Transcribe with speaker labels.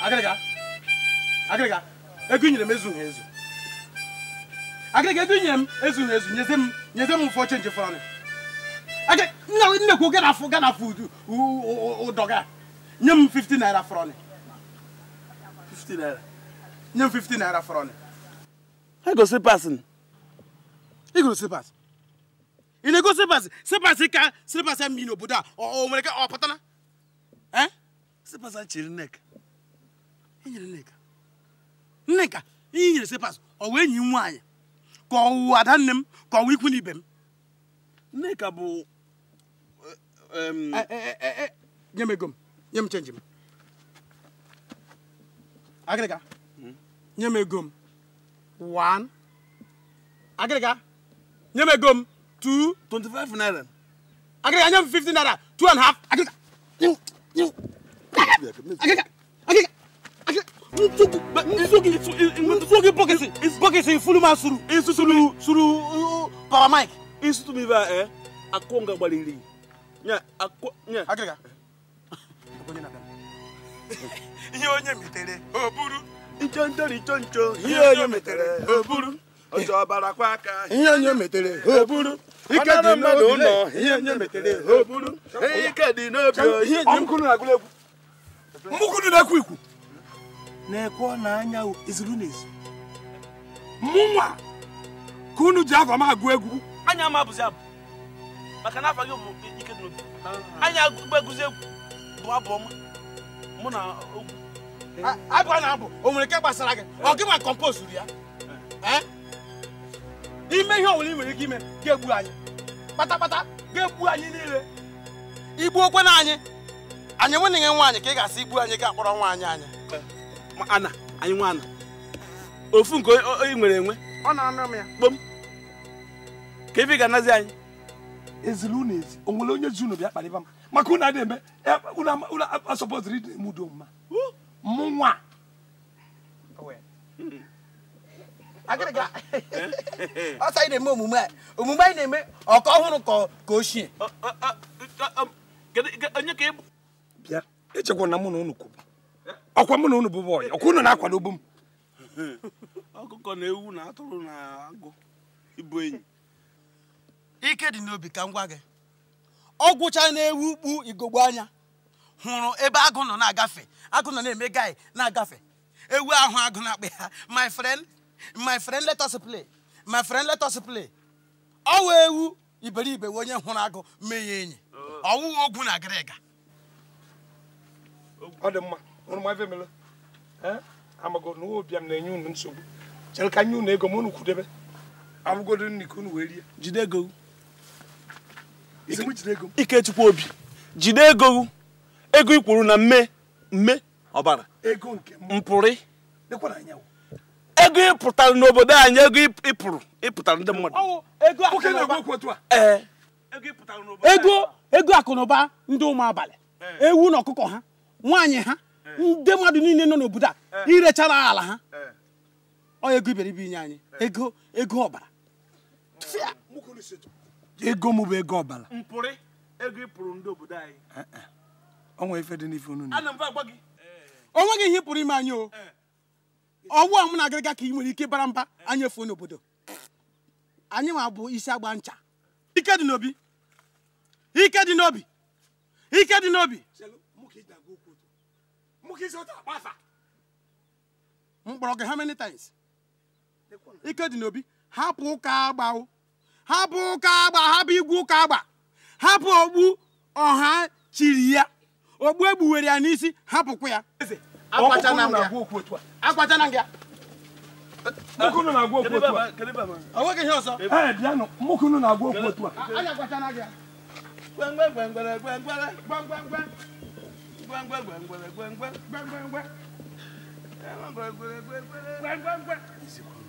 Speaker 1: agịrịga agịrịga ego nyere m ezughị ezu agịrịga ego nyere m nyeze m nyeze m ụfọ chenji fọrọ nnekwu gana afụ gana afụ ụdọ ga nye m 50 naira fọrọ 50 naira nye m 50 naira fọrọ egosi pasị igosi pasị ị na-ego sịpasị sịpasị ka sịpasị mmiri n'obodo a o nwere ka ọ pụtara sịpasị chịrị nek enyere Nneka Nneka ihe nyere sepas ọ wee enyi m nwaanyị ka ọ ada nne m ka ọ ikwu n'ibe m Nneka bụ e, e, e, nye m ego m nye m chenji m agịrịga hmm? nye m ego m one agịrịga nye m ego m naira agịrịga nye m naira 1/2 and half agịrịga agịrịga nsogi bɔkisi bɔkisi fulu ma suru suru suru papa mike i sutu mi ba ɛ a n'obi na na-ekwe ọ na anya ezuru n'ezu mụnwa ka unu ji afọ m agụ egwu anya ama abụzi abụ maka na afa gị bụ ike n'obi anya agụzi egwu bụ abụ ọma mụ na ogwu abụ na-abụ o nwere nke gbasara gị ọ gị ma kọmpost ya ime ihe ọbụla ị nwere ike ime ga-egbu anyị kpatakpata ga-egbu anyị niile okwe na anyị anyị nwanne gị nwaanyị ka ị ga-asị igbu anyị ga-akpọrọ nwa anyị anya ana anyị nwa ana ofu nke ị nwere enwe ọ na ya kpom ka ife ga-anazi anyị ezili unu ezi o nwere onye ji unu bịa kparịba m maka unu adị eme unu asọpọtụrụ ịdị eme udo mma mụ nwa ọsọ anyị na-eme omume a omume anyị na-eme ọka ọhụrụ ka ochie onye ka ị bụ bịa echekwa na mụ na unu kwuru ọkwa mụ na unu bụ bọyị ọkwa unu na-akwadobu m ọkụkọ na ewu na atụrụ na agụ ịbụ enyi ike dị n'obi ka m gwa gị ọ gwụcha na-ewu kpu igogbo anya hụrụ ebe agụ nọ na-agafe agụ nọ na-eme gaị na-agafe ewu ahụ agụ na-akpa ha my friend my friend let us play my friend let us play ọ wụ ewu iberibe onye hụrụ agụ mee ya enyi ọwụghị ogwu na agịrịga ọ dị mma unu ma efemela amago na ụwa ụbịam na-enye unu nsogbu chere ka nye unu ego ma unu kwudebe abụgodo nri ka unu wee rie jide ego ikechukwu obi jide ego ego ikwuru na mme mme ọbara mpụrị ego ịpụtara n'obodo anyị ego ịpụrụ ịpụtara ndị mmadụ e. ego ego akụ ndị ụmụ abalị e. ewu na ọkụkọ ha nwaanyị ha Eh. ndị mmadụ niile nọ n'obodo a eh. irechara ala ha eh. ọ ego iberibe inye anyị ego ego ọbara ego m bụ ego ọbara onweghị ihe pụrụ ime anyị o ọwụ a mụ na ka ị nwere ike bara mba anyị efuo n'obodo anyị ma bụ isi agba ncha ike dị n'obi ike dị n'obi ike dị n'obi m kpọrọ gị many times ike dị n'obi hapụ ụka agba hapụ ụka agba hapụ igwu ụka agba hapụ ogbu ọha chiri ya ogbu egbuwere ya n'isi hapụkwa ya mụkụnụ na-agwa okwu otu a na-agwa okwu otu a bang quoi